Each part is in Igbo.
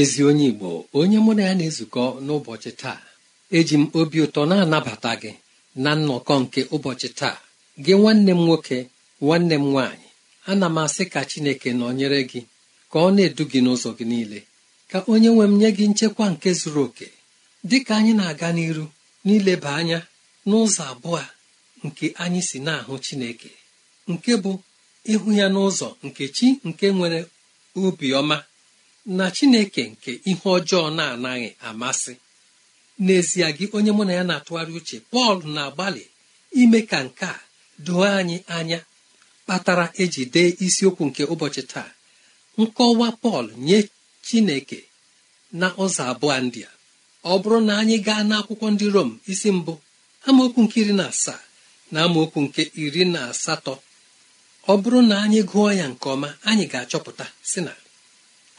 ezi onye igbo onye mụ na ya na-ezukọ n'ụbọchị taa eji m obi ụtọ na-anabata gị na nnọkọ nke ụbọchị taa gị nwanne m nwoke nwanne m nwaanyị ana m asị ka chineke nọnyere gị ka ọ na-edu gị n'ụzọ gị niile ka onye nwe m nye gị nchekwa nke zuru oke dị ka anyị na-aga n'iru n'ileba anya n'ụzọ abụọ nke anyị si na-ahụ chineke nke bụ ịhụ ya n'ụzọ nke chi nke nwere obiọma na chineke nke ihe ọjọọ na-anaghị amasị n'ezie gị onye mụ na ya na-atụgharị uche pọl na-agbalị ime ka nke a doo anyị anya kpatara eji dee isiokwu nke ụbọchị taa nkọwa pọl nye chineke na ụzọ abụọ ndị a ọ bụrụ na anyị gaa n'akwụkwọ ndị rom isi mbụ amaokwu nke iri na asaa na amaokwu nke iri na asatọ ọ bụrụ na anyị gụọ ya nke ọma anyị ga-achọpụta si na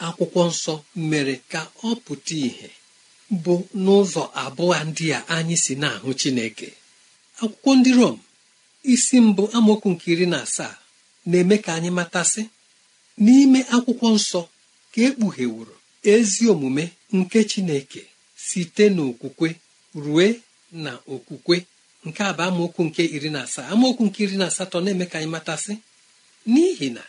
akwụkwọ nsọ mere ka ọ pụta ìhè bụ n'ụzọ abụọ ndị a anyị si na-ahụ Chineke akwụkwọ ndị Rom isi mbụ amaokwu nke iri na asaa na-eme ka anyị matasị n'ime akwụkwọ nsọ ka ekpughewuru ezi omume nke Chineke site n'okwukwe rue na okwukwe nke a bụ amaokwu nke iri na asaa amaokwu nke iri na asatọ na-eme ka anyị matasị n'ihi na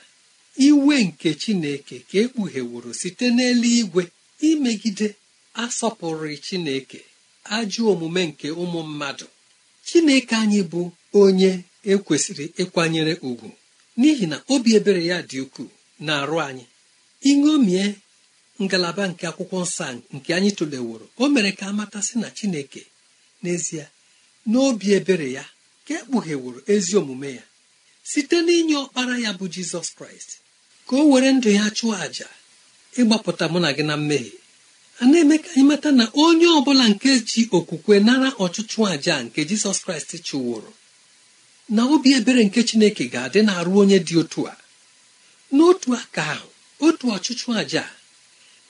iwe nke chineke ka ekpugheworo site n'eluigwe imegide asọpụrụ chineke ajọ omume nke ụmụ mmadụ chineke anyị bụ onye ekwesịrị ịkwanyere ugwu n'ihi na obi ebere ya dị ukwuu na-arụ anyị iṅomie ngalaba nke akwụkwọ nsọ nke anyị tụleworo o mere ka matasị na chineke n'ezie n'obi ebere ya ka ekpugheworo ezi omume ya site n'inye ọkpara ya bụ jizọs kraịst ka o were ndụ ya chụọ àjà ịgbapụta mụ na gị na mmehie a na-eme ka anyị mata na onye ọbụla nke ji okwukwe nara ọchụchụ àjà nke jizọs kraịst chụwụrụ na obi ebere nke chineke ga-adị na-arụ onye dị otu a n'otu aka ahụ otu ọchụchụ àjà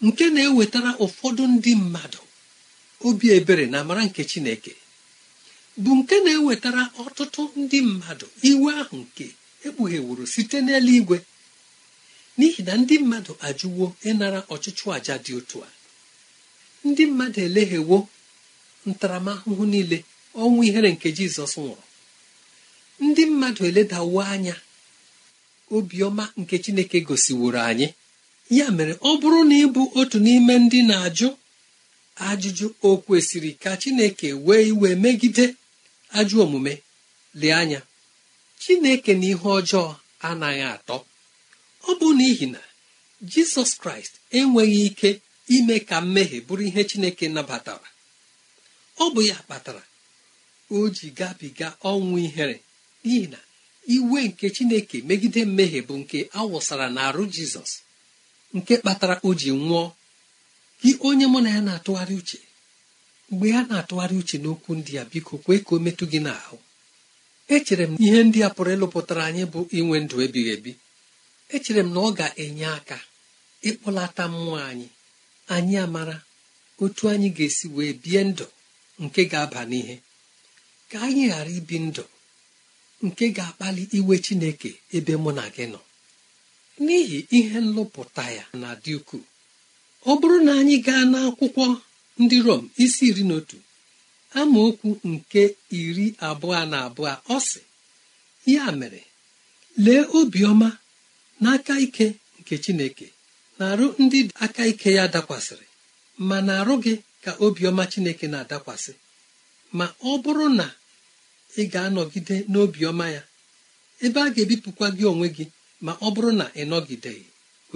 nke na-ewetara ụfọdụ ndị mmadụ obi ebere na amara nke chineke bụ nke na-ewetara ọtụtụ ndị mmadụ site n'eluigwe n'ihi na ndị mmadụ ajụwo ịnara ọchịchụ àjà dị otu a ndị mmadụ eleghewo ntaramahụhụ niile ọnwụ ihere nke jizọs nwụrụ ndị mmadụ eledawo anya obiọma nke chineke gosiworo anyị ya mere ọ bụrụ na ịbụ otu n'ime ndị na-ajụ ajụjụ o kwesịrị ka chineke wee iwe megide ajụ omume lee anya chineke na ihe ọjọọ anaghị atọ ọ bụ n'ihi na jizọs kraịst enweghị ike ime ka mmehie bụrụ ihe chineke nabatara ọ bụ ya kpatara o ji gabiga ọnwụ ihere n'ihi na iwe nke chineke megide mmehie bụ nke awụsara n'arụ jizọs nke kpatara o ji nwụọ gị onye mụ na ya na-atụgharị uche mgbe ya na-atụgharị uche n'okwu ndị a biko kwee ka o metụ gị n'ahụ echere m ihe ndị a pụrụ ịlụpụtara anyị bụ inwe ndụ ebighị ebi echere m na ọ ga-enye aka ịkpọlata mmụọ anyị anyị amara otu anyị ga-esi wee bie ndụ nke ga-aba n'ihe ka anyị ghara ibi ndụ nke ga-akpali iwe Chineke ebe mụ na gị nọ n'ihi ihe nlụpụta ya na dị ukwuu ọ bụrụ na anyị gaa n'akwụkwọ ndị Rom isi iri na otu amaokwu nke iri abụọ na abụọ ọ sị ya mere lee obiọma n'aka ike nke chineke na-arụ ndị aka ike ya dakwasịrị ma na-arụ gị ka obiọma chineke na-adakwasị ma ọ bụrụ na ị ga-anọgide n'obiọma ya ebe a ga-ebipụkwa gị onwe gị ma ọ bụrụ na ị nọgideghị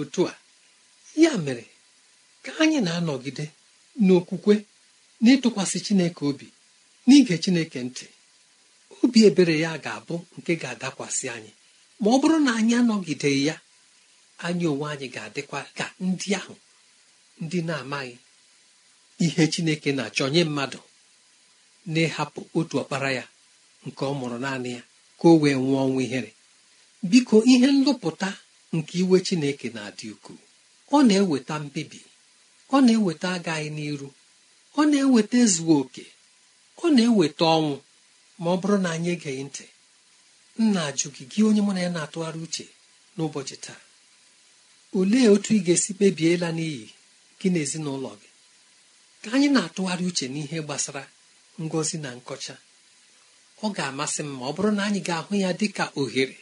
otu a ya mere ka anyị na-anọgide n'okwukwe n'ịtụkwasị chineke obi n'ige chineke ntị obi ebere ya ga-abụ nke ga-adakwasị anyị ma ọ bụrụ na anyị anọgideghị ya anyị onwe anyị ga-adịkwa ka ndị ahụ ndị na-amaghị ihe chineke na-achọ nye mmadụ na-ehapụ otu ọkpara ya nke ọ mụrụ naanị ya ka o wee nwụọ ọnwụ ihere biko ihe nlụpụta nke iwe chineke na-adị ukwuu ọ na-eweta mbibi ọ na-eweta agaghị n'iru ọ na-eweta ezughị oke ọ na-eweta ọnwụ ma ọ bụrụ na anyị egeghị ntị nna ajụ gị gị onye mụ na ya na-atụgharị uche n'ụbọchị taa olee otu ị ga-esi kpebie n'iyi gị na ezinụlọ gị ka anyị na-atụgharị uche n'ihe gbasara ngọzi na nkọcha ọ ga-amasị m ma ọ bụrụ na anyị ga-ahụ ya dị ka ohere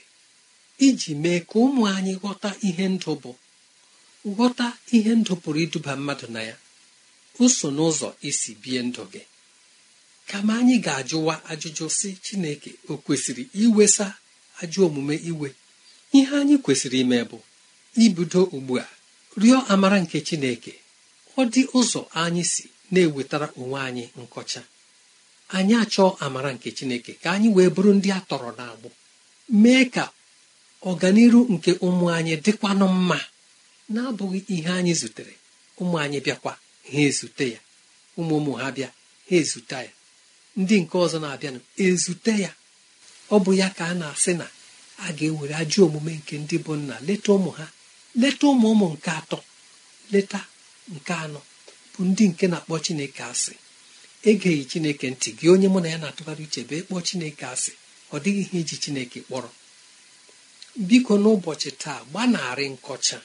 iji mee ka ụmụ anyị ghọta ihe ndụ bụ ghọta ihe ndụ pụrụ iduba mmadụ na ya uso n'ụzọ isi bie ndụ gị kama anyị ga-ajụwa ajụjụ si chineke o kwesịrị iwesa ajụ omume iwe ihe anyị kwesịrị ime bụ ibido ugbu a rịọ amara nke chineke ọ dị ụzọ anyị si na-ewetara onwe anyị nkọcha anyị achọọ amara nke chineke ka anyị wee bụrụ ndị a tọrọ n'agbụ mee ka ọganiru nke ụmụ anyị dịkwanụ mma na ihe anyị zutere ụmụ anyị bịakwa ha ezute ya ụmụ ụmụ ha bịa ha ezute ya ndị nke ọzọ na-abịanụ ezute ya ọ bụ ya ka a na-asị na a ga-ewere ajọ omume nke ndị bụ nna leta ụmụ ha leta ụmụ ụmụ nke atọ leta nke anọ bụ ndị nke na-akpọ chineke asị egeghị chineke ntị gị onye mụ na ya na-atụgharị uche bee kpọọ chineke asị ọ dịghị ihe iji chineke kpọrọ biko n'ụbọchị taa gbanarị nkọcha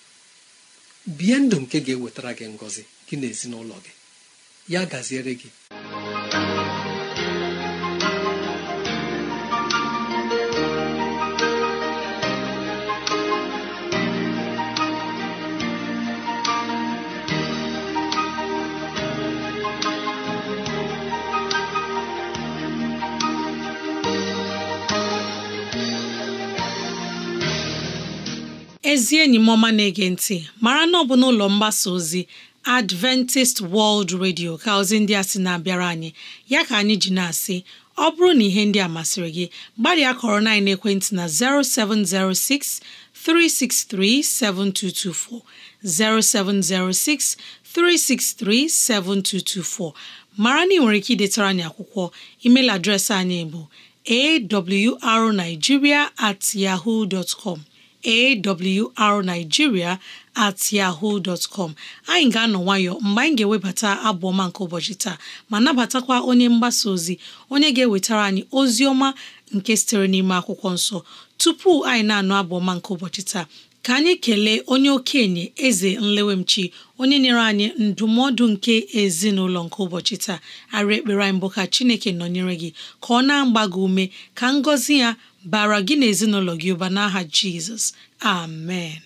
bie ndụ nke ga-ewetara gị ngọzi gị na ezinụlọ gị ya gaziere gị ezi enyi m ọma na-ege ntị mara na ọ bụ n'ụlọ mgbasa ozi adventist world radio ka ozi ndị a sị na-abịara anyị ya ka anyị ji na-asị ọ bụrụ na ihe ndị a masịrị gị gbalịa kọrọ na ekwentị na 0706 363 7224 0706 363 7224 mara na ị nwere ike idetara anyị akwụkwọ email adreesị anyị bụ awrnigeria at yahoo awrnigeria at yahoo dot anyị ga-anọ nwayọ mgbe anyị ga-ewebata abụ ọma nke ụbọchị taa ma nabatakwa onye mgbasa ozi onye ga-ewetara anyị ozi ọma nke sitere n'ime akwụkwọ nsọ tupu anyị na-anụ abụ ọma nke ụbọchị taa ka anyị kelee onye okenye eze nlewemchi onye nyere anyị ndụmọdụ nke ezinụlọ nke ụbọchị taa arị ekpere anyị mbụ ka chineke nọnyere gị ka ọ na-agba gị ume ka ngọzi ya bara gị na ezinụlọ gị ụba n'aha jizọs amen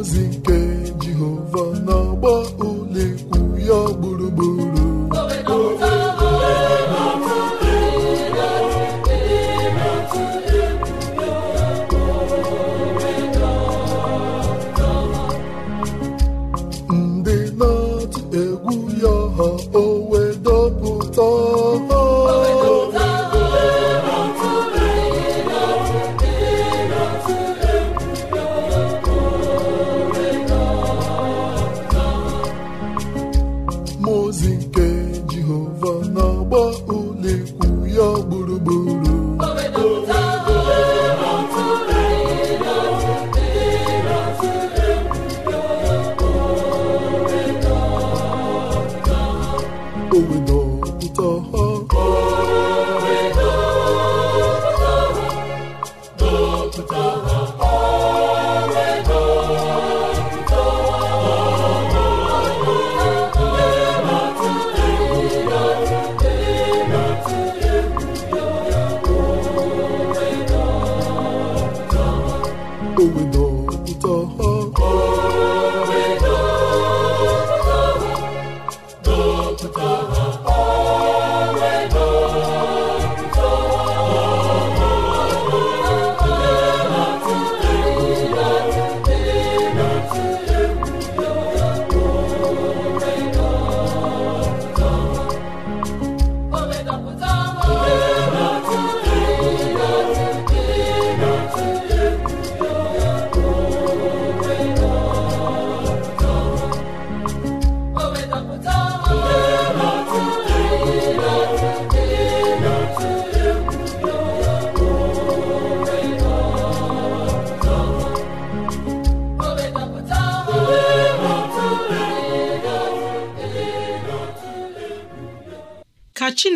ozi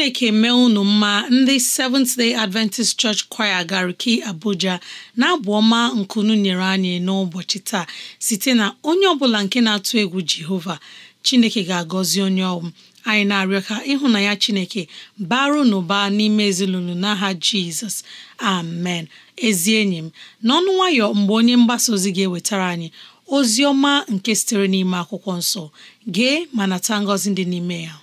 chineke mee unu mma ndị Seventh Day Adventist Church Choir Gariki Abuja na-abụ ọma nkunu nyere anyị n'ụbọchị taa site na onye ọbụla nke na-atụ egwu Jehova chineke ga-agọzi onye ọm anyị na-arịọ ka ịhụ na ya chineke baru n'ụba n'ime ezinụlọ n'aha Jizọs amen ezi enyi m n'ọnụ nwayọ mgbe onye mgbasa ozi ga-ewetara anyị ozi ọma nke sitere n'ime akwụkwọ nsọ gee ma nata ngọzi dị n'ime ya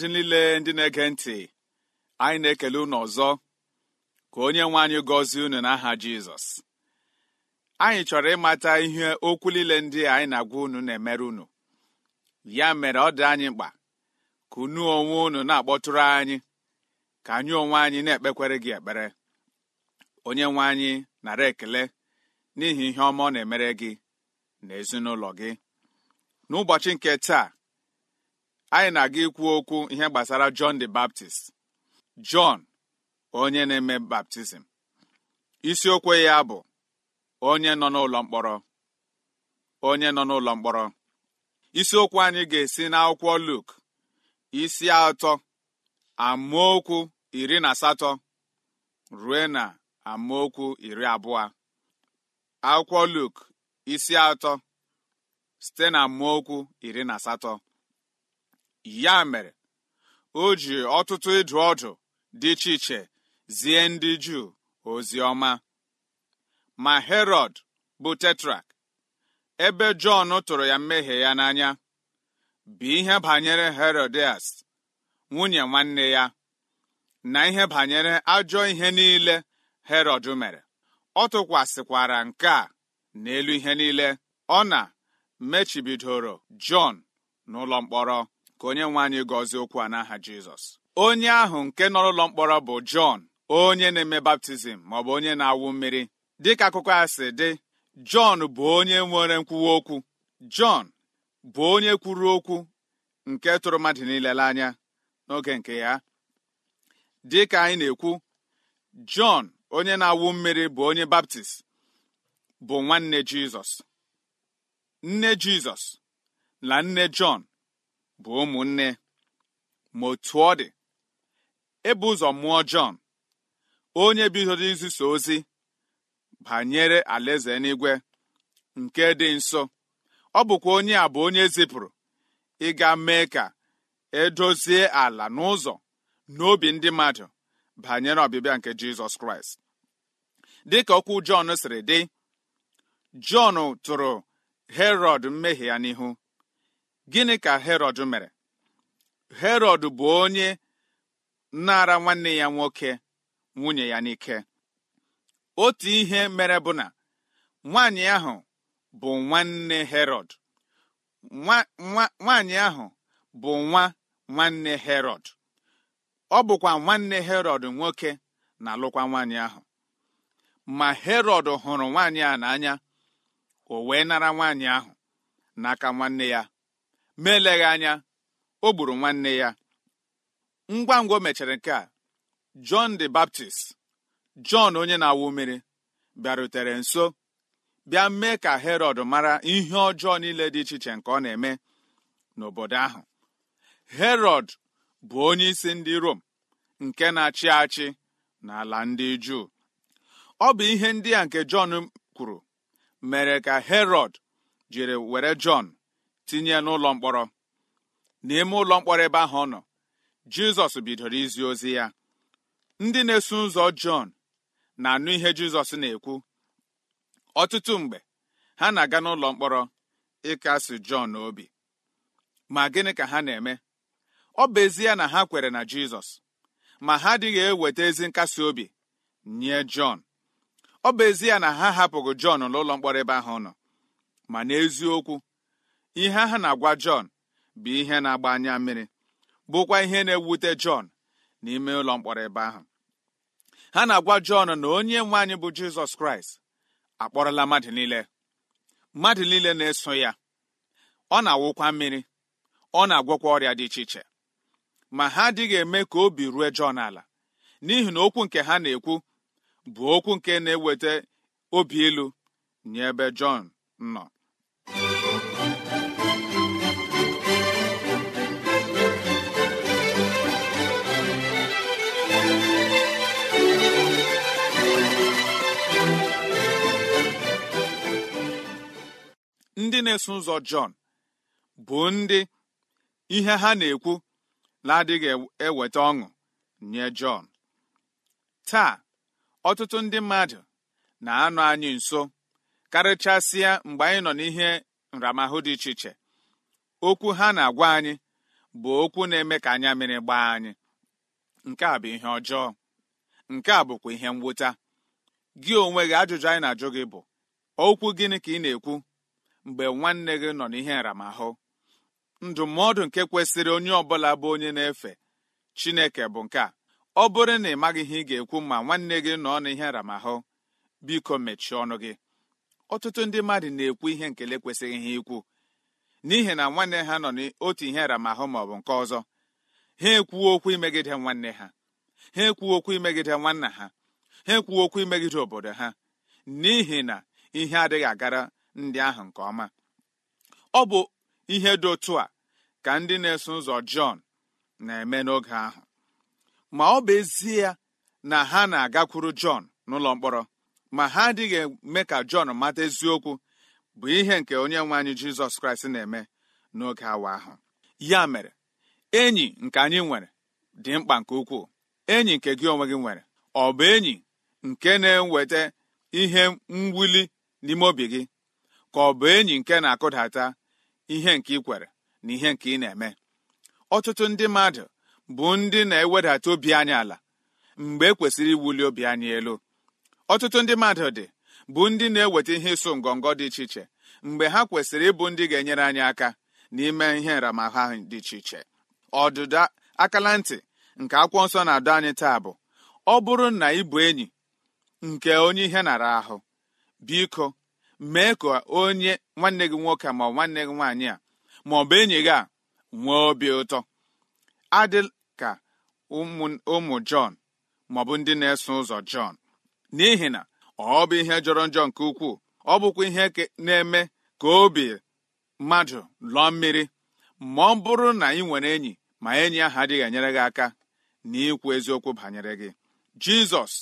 mmadụ niile ndị na-ege ntị anyị na-ekele unu ọzọ ka onye nwe anyị gọzie unu n'aha Jizọs anyị chọrọ ịmata ihe okwu niile ndị anyị na-agwa unu na-emere unu ya mere ọ dị anyị mkpa ka unu onwe unu na-akpọtụrụ anyị ka anyị onwe anyị na-ekpekwere gị ekpere onye nwe anyị nara ekele n'ihi ihe ọma ọ na-emere gị na ezinụlọ gị n'ụbọchị nke taa anyị na-aga ikwu okwu ihe gbasara John the Baptist John onye na-eme baptizim isiokwu ya bụ onye nọ n'ụlọ mkpọrọ onye nọ n'ụlọ mkpọrọ isiokwu anyị ga-esi n'akwụkwọ Luk isi atọ amaokwu iri na asatọ rue na amaokwu iri abụọ akwụkwọ Luk isi atọ site na amaokwu iri na asatọ ya mere o ji ọtụtụ ịdụ ọdụ dị iche iche zie ndị juu ozi ọma ma herọd bụ tetrak ebe jọn tụrụ ya mmehie ya n'anya bụ ihe banyere herodias nwunye nwanne ya na ihe banyere ajọ ihe niile herọd mere ọ tụkwasịkwara nke a n'elu ihe niile ọ na mechibidoro jọn n'ụlọ mkpọrọ ka onye nwe anyị gọzie okwu a n'aha jizọs onye ahụ nke nọrọ ụlọ mkpọrọ bụ jọn onye na-eme baptizim maọbụ onye na-awụ mmiri dịka akụkọ a si dị jọn bụ onye nwere nkwuwa okwu jọn bụ onye kwuru okwu nke tụrụ mmadụ niile n'anya n'oge nke ya dịka anyị na-ekwu jọn onye na-awụ mmiri bụ onye baptist bụ nwanne jizọs nne jizọs na nne jọn bụ ụmụnne ma otu ọ dị ebu ụzọ mụọ Jọn onye bidoro iziso ozi banyere alaeze n'igwe nke dị nso ọ bụkwa onye a bụ onye zipụrụ ịga mee ka edozie ala n'ụzọ n'obi ndị mmadụ banyere ọbịbịa nke Jizọs Kraịst dịka okwu Jọn siri dị Jọn tụrụ Herọd mmehie ya n'ihu gịnị ka herọd mere herọd bụ onye nara nwanne ya nwoke nwunye ya n'ike otu ihe mere bụ na nwaanyị ahụ bụ nwanne herọd nwaanyị ahụ bụ nwa nwanne herọd ọ bụkwa nwanne herọd nwoke na-alụkwa nwaanyị ahụ ma herọd hụrụ nwaanyị a n'anya o wee nara nwaanyị ahụ n'aka nwanne ya ma anya o gburu nwanne ya ngwa ngwa o mechara nke a John the Baptist John onye na-awụ mmiri bịarutere nso bịa mee ka Herod mara ihe ọjọọ niile dị iche iche nke ọ na-eme n'obodo ahụ Herod bụ onyeisi ndị Rom nke na-achị achị n'ala ndị Juu ọ bụ ihe ndị a nke Jọn kwuru mere ka Herod jiri were Jọn tinye ya n'ụlọ mkpọrọ n'ime ụlọ mkpọrọ ebe ahụ ọ nọ jizọs bidoro izi ozi ya ndị na-eso ụzọ jọn na-anụ ihe jizọs na-ekwu ọtụtụ mgbe ha na-aga n'ụlọ mkpọrọ ịkasi jọn obi ma gịnị ka ha na-eme ọ bụ ya na ha kwere na jizọs ma ha adịghị eweta ezi nkasi obi nye jọn ọ bụ ya na ha hapụghị jọn n'ụlọ mkpọrọ ebe ahụ nọ ma n'eziokwu ihe ha na-agwa Jọn bụ ihe na-agba anya mmiri bụkwa ihe na-ewute Jọn n'ime ụlọ mkpọrọ ebe ahụ ha na-agwa Jọn na onye nwe anyị bụ Jizọs Kraịst akpọrọla mmadụ niile mmadụ niile na-eso ya ọ na-awụkwa mmiri ọ na-agwọkwa ọrịa dị iche iche ma ha adịghị eme ka obi rue Jọn ala n'ihi na okwu nke ha na-ekwu bụ okwu nke na-eweta obi ilu nye ebe Jọn nọ ndị na-eso ụzọ Jọn bụ ndị ihe ha na-ekwu na-adịghị eweta ọṅụ nye Jọn taa ọtụtụ ndị mmadụ na-anọ anyị nso karịchasịa mgbe anyị nọ n'ihe nramahụ dị iche iche okwu ha na-agwa anyị bụ okwu na-eme ka anya mmiri gbaa anyị nke a bụ ihe ọjọọ nke a bụkwa ihe mwụta gị onwe gị ajụjụ anyị na-ajụ gị bụ okwu gịnị ka ị na-ekwu mgbe nwanne gị nọ n'ihe aramahụ ndụmọdụ nke kwesịrị onye ọbụla bụ onye na-efe Chineke bụ nke a ọ bụrụ na ị maghị ihe ị ga-ekwu ma nwanne gị nọ n'ihe aramahụ biko mechie ọnụ gị ọtụtụ ndị mmadụ na-ekwu ihe nkele kwesịghị ha ikwu n'ihi na nwanne ha nọ n'otu ihe aramahụ ma ọ bụ nke ọzọ ha ekwuo okwu imegide nwanne ha ha ekwuo okwu imegide nwanna ha ha ekwuo okwu imegide obodo ha n'ihi na ihe adịghị agara ndị ahụ nke ọma ọ bụ ihe dị otu a ka ndị na-eso ụzọ Jọn na-eme n'oge ahụ ma ọ bụ ezie na ha na-agakwuru Jọn n'ụlọ mkpọrọ ma ha adịghị eme ka Jọn mata eziokwu bụ ihe nke onye nwe anyị Jizọs Kraịst na-eme n'oge awa ahụ ya mere enyi nke anyị nwere dị mkpa nke ukwuu enyi nke gị onwe gị nwere ọ bụ enyi nke na-eweta ihe mwuli n'ime obi gị ka ọ bụ enyi nke na-akụdata ihe nke ị kwere na ihe nke ị na-eme ọtụtụ ndị mmadụ bụ ndị na-ewedata obi anyị ala mgbe e kwesịrị iwuli obi anyị elu ọtụtụ ndị mmadụ dị bụ ndị na-eweta ihe ịsụ ngọngọ dị iche iche mgbe ha kwesịrị ịbụ ndị ga-enyere anyị aka n'ime ihe nramahụ ahụ dị iche iche ọdụda akala ntị nke akwụkwọ nsọ na-adọ anyị taa bụ ọ bụrụ na ị bụ enyi nke onye ihe nara ahụ biko mee ka onye nwanne gị nwoke ma nwanne gị nwaanyị a ma ọ bụ enyi gị a nwee obi ụtọ adị ka ụmụ Jọn maọbụ ndị na-eso ụzọ Jọn n'ihi na ọ bụ ihe jọrọ njọ nke ukwuu ọ bụkwa ihe na-eme ka obi mmadụ lụọ mmiri ma ọ bụrụ na ị nwere enyi ma enyi ahụ adịghị enyere gị aka na ikwu eziokwu banyere gị Jizọs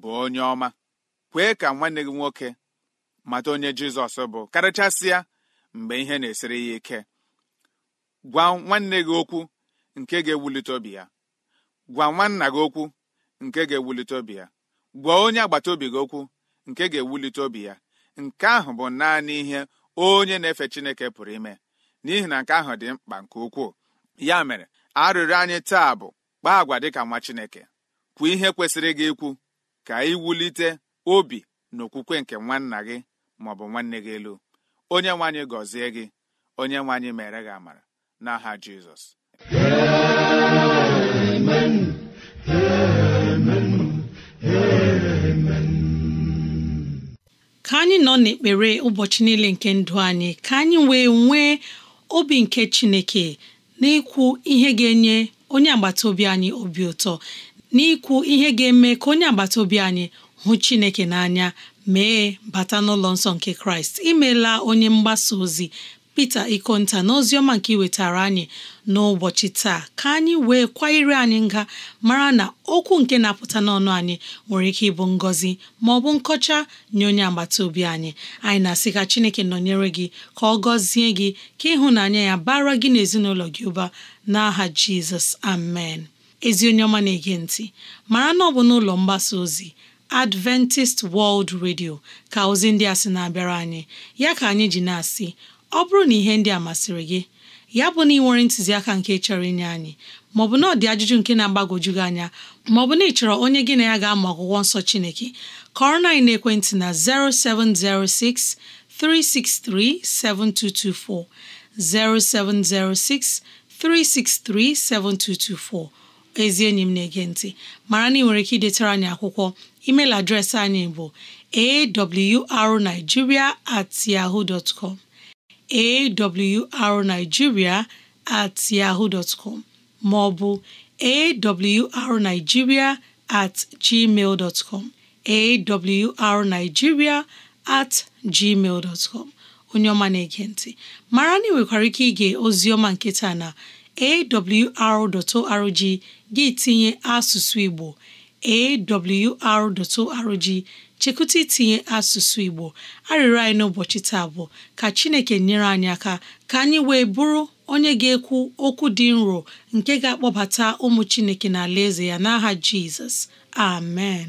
bụ onye ọma kwee ka nwanne gị nwoke mata onye jizọs bụ karịchasịa mgbe ihe na-esiri ya ike gwa nwanne gị okwu nke ga-ewulite obi ya gwa nwanna gị okwu nke ga-ewulite obi ya gwa onye agbata obi gị okwu nke ga-ewulite obi ya nke ahụ bụ naanị ihe onye na-efe chineke pụrụ ime n'ihi na nke ahụ dị mkpa nke ukwuu ya mere arịrịọ anyị taa bụ kpaa agwa dịka nwa chineke kwuo ihe kwesịrị gị ikwu ka ị wulite obi na okwukwe nke nwanna gị bụ nwanne gị elu onye nwanyị gọzie gị onye nwanyị mere gị amara n'aha jizọs ka anyị nọ n'ekpere ụbọchị niile nke ndụ anyị ka anyị wee nwee obi nke chineke n'ịkwụ ihe ga-enye onye agbata obi anyị obi ụtọ n'ịkwụ ihe ga-eme ka onye agbata obi anyị hụ chineke n'anya mee bata n'ụlọ nsọ nke kraịst imela onye mgbasa ozi Pita Ikonta na ọma nke iwetara anyị n'ụbọchị taa ka anyị wee kwanyere anyị nga mara na okwu nke na-apụta n'ọnụ anyị nwere ike ịbụ ngọzi ma ọ bụ nkọcha nye onye agbata obi anyị anyị na-asị ka Chineke nọnyere gị ka ọ gọzie gị ka ịhụnanya ya bara gị n'ezinụlọ gị ụba n'aha Jizọs amen ezi onye ọma na-ege ntị mara na ọ bụ n'ụlọ mgbasa ozi Adventist World Radio ka ozi ndị a sị na-abịara anyị ya ka anyị ji na-asị ọ bụrụ na ihe ndị a masịrị gị ya bụ na ị nwere ntụziaka nke chọrọ inye anyị maọbụ na ọ dị ajụjụ nke na-agbagwoju gị anya maọbụ na ị chọrọ onye gị na ya ga-amụ akwụkwọ nsọ Chineke kọrọ na ekwentị na 0706 363 7224 0706 363 7224 ezi enyi m na-ege ntị mara na ị nwere ike idetara anyị akwụkwọ email adreesị anyị bụ arigiria at yahoo dot com awrnigeria at yahoo dot com ma ọ at dot com awrnigeria at dot com onye ọma na-ege ntị mara na ị nwekwara ike ige ozioma ọma nketa na awr.org gị tinye asụsụ Igbo awr.org chekwụta itinye asụsụ Igbo arịrị anyị n'ụbọchị taa bụ ka Chineke nyere anyị aka ka anyị wee bụrụ onye ga-ekwu okwu dị nro nke ga-akpọbata ụmụ Chineke na ALA EZE ya n'aha Jizọs amen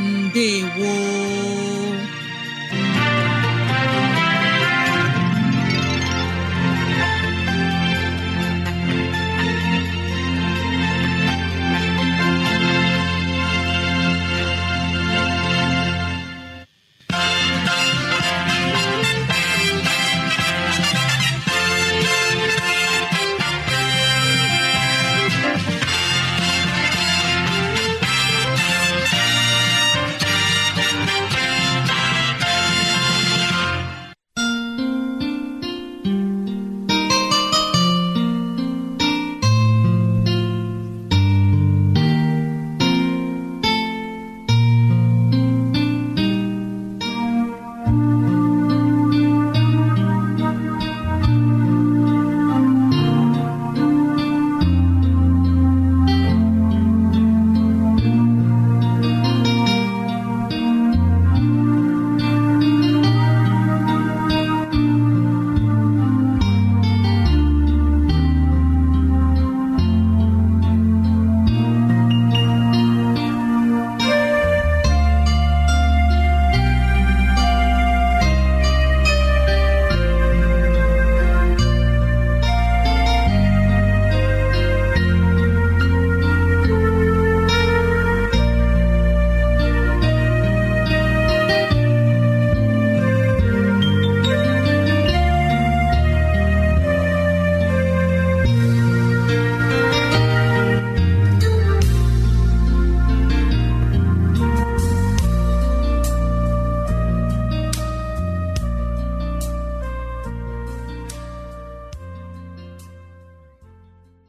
ndewo